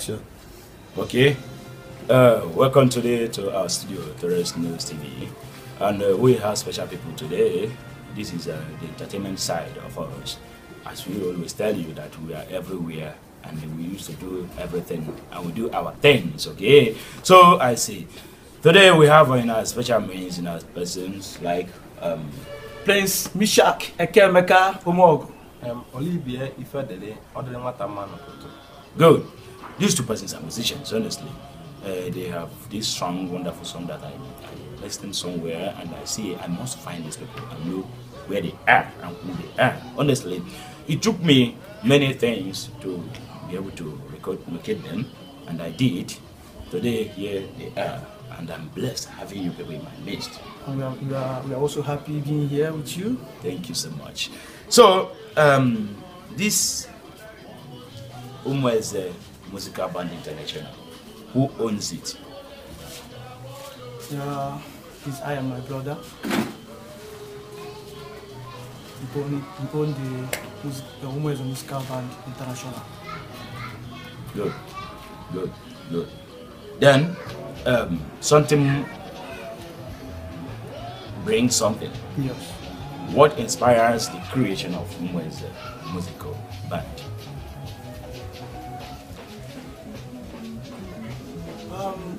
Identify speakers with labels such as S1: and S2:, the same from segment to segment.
S1: Sure. Okay. Uh, welcome today to our studio, Torres News TV. And uh, we have special people today. This is uh, the entertainment side of us. As we always tell you that we are everywhere and we used to do everything and we do our things, okay? So I see. Today we have in our special means in our persons like um, Prince Mishak Ekemeka
S2: Omogo. Um, Ifedele, Odele
S1: Good. These two persons are musicians, honestly. Uh, they have this strong, wonderful song that I, I listened somewhere and I see I must find these people and know where they are and who they are. Honestly, it took me many things to be able to record, locate them, and I did. Today, here they are, and I'm blessed having you people in
S3: my midst. And we are, we are, we are also happy being here with you. Thank you so much.
S1: So, um, this Umweze Musical Band International? Who owns it?
S3: Yeah, it's I and my brother. We own, we own the, the Umwezo Musica Band International. Good,
S1: good, good. Then, um, something brings something. Yes. What inspires the creation of Umwezo uh, Musical Band?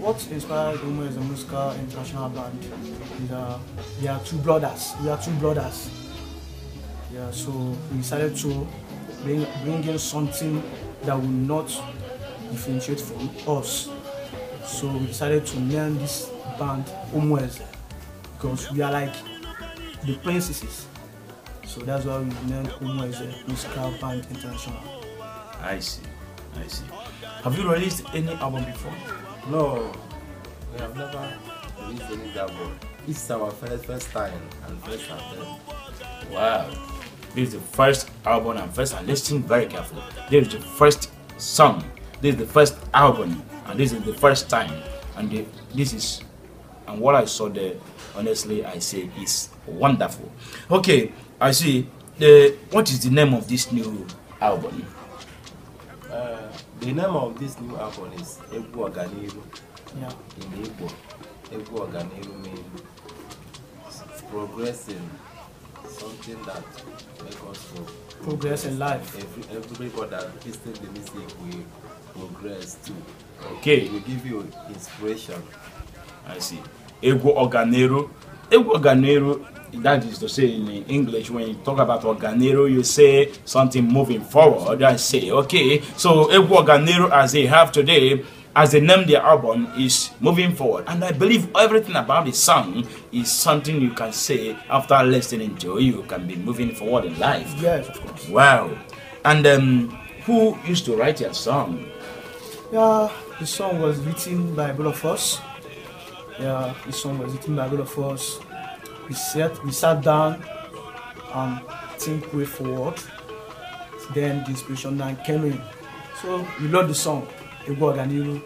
S3: what inspired Omo is a musical international band. And, uh, we are two brothers. We are two brothers. Yeah, so we decided to bring, bring in something that will not differentiate from us. So we decided to name this band Omoez because we are like the princesses. So that's why we named Omoez Musical Band International.
S1: I see, I see.
S3: Have you released any album before?
S2: No, we have never released any Gabon. This is our first, first time and first attempt. Wow.
S1: This is the first album and first, and listen very carefully. This is the first song. This is the first album, and this is the first time. And the, this is, and what I saw there, honestly, I say is wonderful. Okay, I see. The, what is the name of this new album?
S2: The name of this new album is Egwu Ọganiru. Yeah. In Igbo, Egwu Ọganiru means progressing, something that makes us grow. Progress in life. Every, everybody that listens to music will progress too. Okay. It will give you inspiration. I see. Egwu
S1: Ọganiru. Egwu Ọganiru that is to say in English, when you talk about organero, you say something moving forward. I say, okay, so if organero as they have today, as they name their album, is moving forward. And I believe everything about the song is something you can say after listening to you can be moving forward in life.
S3: Yes, of course.
S1: Wow. And um, who used to write your song?
S3: Yeah, the song was written by both of us. Yeah, the song was written by both of us. we sat we sat down and think way forward then the inspiration then came in so we love the song egwu ọganiru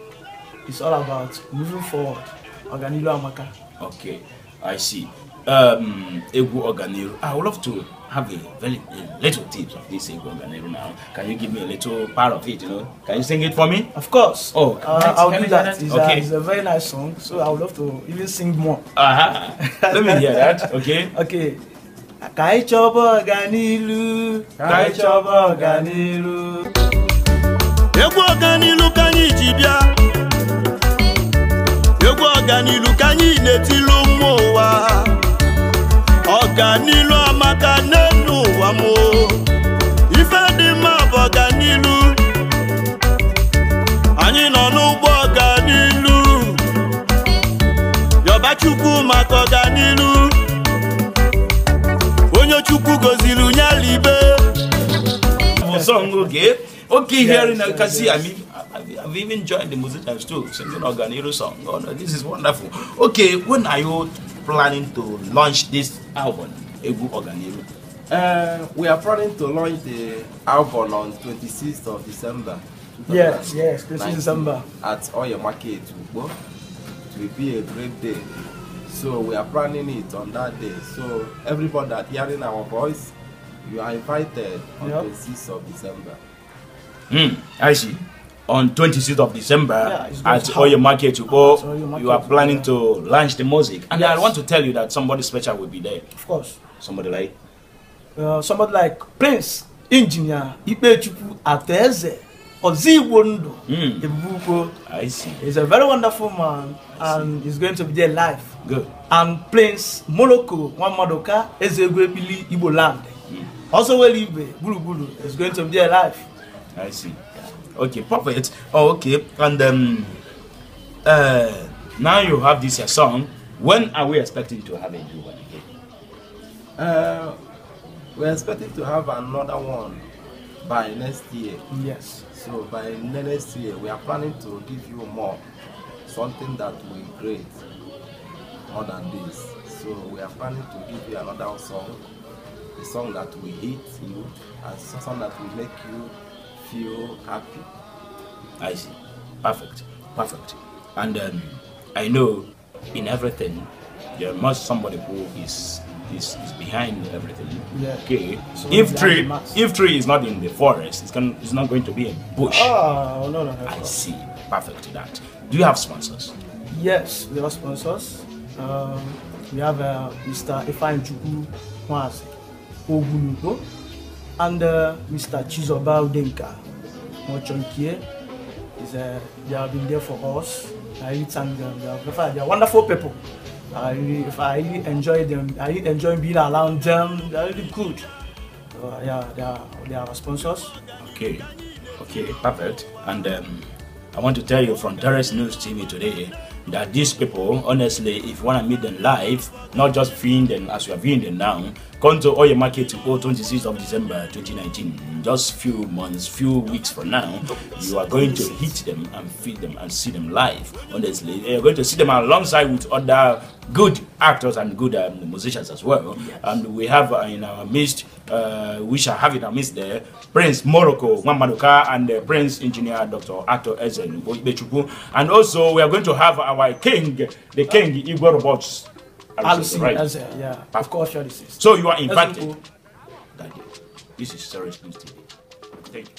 S3: it's all about moving forward ọganiru amaka. okay
S1: I see. Um, Egu Organeru, ah, I would love to have a very a little tips of this Egu Organeru now. Can you give me a little part of it? You know, can you sing it for me? Of
S3: course. Oh, uh, I'll do that. It's, okay. a, it's a very nice song, so I would love to even sing more. Uh-huh. Let me hear that. Okay. Okay. Ka anyị chọba ọganilu, ka anyị chọba ọganilu. Egwu ọganilu ka anyị egwu ọganilu ka anyị na-etilu mmụọ ụwa ọganilu amaka n'elu ụwa m ife dị mma bụ ọganilu anyị nọ n'ụgbọ ọganilu yọba chukwu maka ọganilu onye chukwu goziri nyalibe
S1: oke I've even joined the music too, singing Oganiro song. Oh no, this is wonderful. Okay, when are you
S2: planning to launch this album, Egu Oganiro? Uh, we are planning to launch the album on 26th of December. Yes, yes, 26th December. At Oyo Market, It will be a great day. So we are planning it on that day. So everybody that hearing our voice, you are invited on yep. the 6th of December.
S1: Hmm, I see on 26th of December yeah, at Oyo Market, you go, market, you are planning yeah. to launch the music. And yes. I
S3: want to tell you that somebody
S1: special will be there. Of course. Somebody like?
S3: Uh, somebody like Prince, Engineer, Ipechukwu Ateze, Ozigbo Ndu, hmm. I see. He's a very wonderful man and he's going to be there live. Good. And Prince Moloko, Wamadoka, Ezegwepili, Igbo Land. Hmm. Also, Welibe, Bulu. He's is going to be there live. I see okay perfect. oh, okay
S1: and then um, uh now you have this your song when are we
S2: expecting to have a new one again uh we're expecting to have another one by next year yes so by next year we are planning to give you more something that will create more than this so we are planning to give you another song a song that will hit you and a song that will make you feel happy. I see.
S1: Perfect. Perfect. And um, I know in everything there must somebody who is is, is behind everything. Yeah. Okay. So if tree if tree is not in the forest, it's going it's not going to be a bush.
S2: Ah, oh no no. no I no. see.
S1: Perfect. That. Do you have sponsors?
S3: Yes, we have sponsors. Um, we have uh, Mr. Ifan Chuku Mwazi under Mr. Chizoba Udenka Mochonkie. Uh, they have been there for us. I really thank them. They are, they are wonderful people. I really, if I really enjoy them. I really enjoy being around them. They are really good. Uh, yeah, they are, they are sponsors.
S1: Okay, okay, perfect. And um, I want to tell you from Darius News TV today that these people, honestly, if you want to meet them live, not just viewing them as you are viewing them now, come to Oye Market to go 26th of December 2019. Just few months, few weeks from now, you are going to hit them and feed them and see them live. Honestly, eh, you're going to see them alongside with other good actors and good um, musicians as well. Yes. And we have uh, in our midst uh, we shall have it amidst there. Prince Morocco Mwamaduka and uh, Prince Engineer Dr. Ato Ezen And also, we are going to have our king, the king Igor Robots.
S3: Alison, right? Alison, yeah, ah. of course, sure this is.
S1: So you are invited. Daddy, this is Serious News TV. Thank you.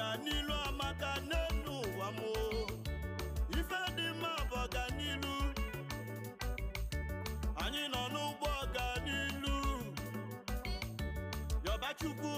S3: ọganilu amaka n'elu ụwa m ife dị mma bụ ọganilu anyị nọ n'ụgbọ ọganilu yọbachukwu